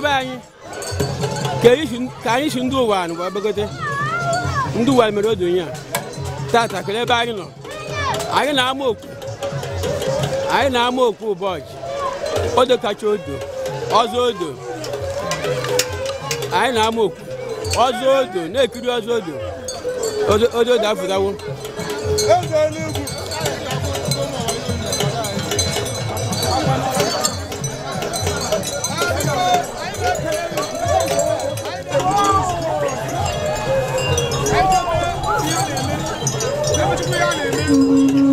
ndị be anyị ka anyị si ndị ụwa anụ gba begote ndị ụwa mere odo onye a tata kele ebe anyị nọ anyị na-ama okwu anyị na-ama okwu ụbọchị odo kacha odo ọzọ odo anyị na-ama okwu ọzọ odo na-ekiri ọzọ odo odo odo afụtawo Thank you. Thank you.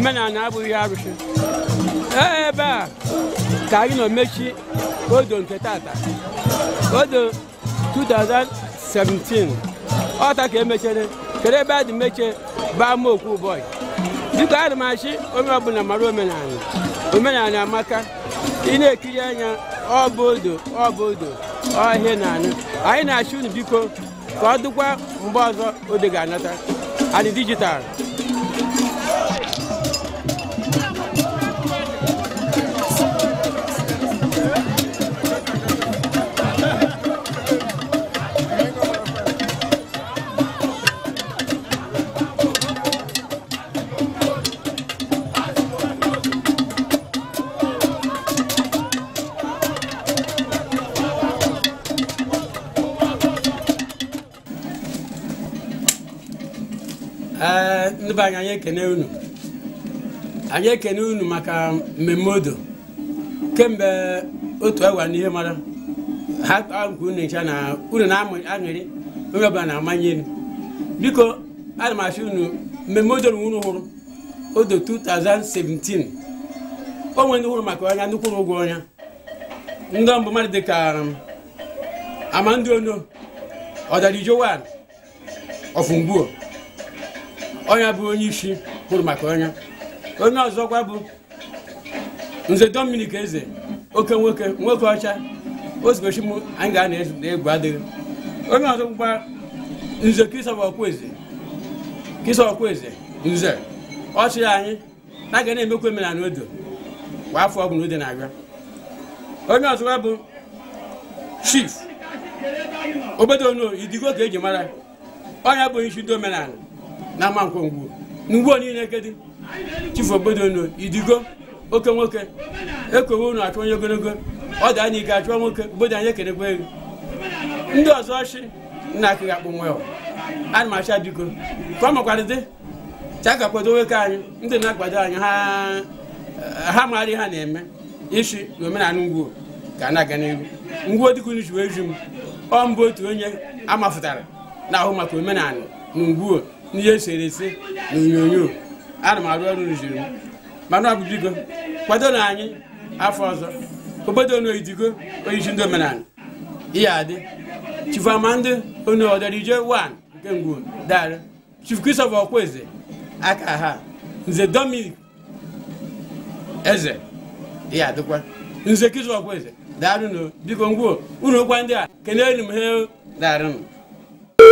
maazị na abụghị arụsị ebe a ka anyị nọ mechi odo nke tata odo 2017 ọta ka emechere kere ebe a dị mechie baa m okwu ụbọchị biko adị m achị onye ọbụla mara omenala omenala amaka ị na-ekiri anya ọ bụ odo ọ bụ odo ọhịa na anụ anyị na-achị unu biko ka ọ dịkwa mgbe ọzọ odo ga-anata adị dijitalụ be anyị anyị ekene unu anyị ekene unu maka mmemme odo kemgbe otu awa n'ihe mara ha kpaa nke unu ncha na unu na-aṅụrị onye ọbụla na-amanye m biko ana m achọ unu mmemme odo unu hụrụ odo 2017 o nwere ndị hụrụ maka ọnya ndị kwụrụ ụgwọ ọnya ndị mbụ mmadụ dịka um, amandị ono ọdarijowan ọfụngbuo onye bụ onye isi kwuru maka onye onye ọzọkwa bụ nze Dominic eze oke nwoke nwoke ọcha ozugbochi m anyị ga na-egwu adịghị onye ọzọ ọzọkwa nze Christopher Okwueze Christopher Okwueze nze ọchị anyị na ga na-emekwa omenala odo kwa afọ ọbụla ode na-abịa onye ọzọkwa bụ chief obodo no idigo ka eji mara onye bụ onye isi ndị omenala na ama nkwongwo n'ugbo niile kedị chifu obodo unu idigo oke nwoke ekowe nu achụ onye ogologo ọ da anyị ike achụọ nwoke bodo anya ekenekwa ego ndị ọzọ chi nna akịghị akpụ nwe ana m acha biko ka ọ makwara dị cha ka nwoke anyị ndị na-akwado anyị ha maara ihe ha na-eme isi na omenala ngwuo ka na-aga n'ihu ngwuo dịka unu ji wee ju m ọ mbụ otu onye amafụtara na ahụ maka omenala na ngwuo n'ihe eserese na onyonyo ana m arụ ọrụ rụziri m mana ọ bụ biko kwado na anyị afọ ọzọ obodo onu oyidigo oyichi ndị omenala ihe adị chifu amandị onu ọdọrije 1 nke ngwo darị chifu christopher okweze aka ha nze dominic eze ihe adịkwa nze christopher okweze daarụ biko ngwo unu okwa ndị a keneelu m he daarụ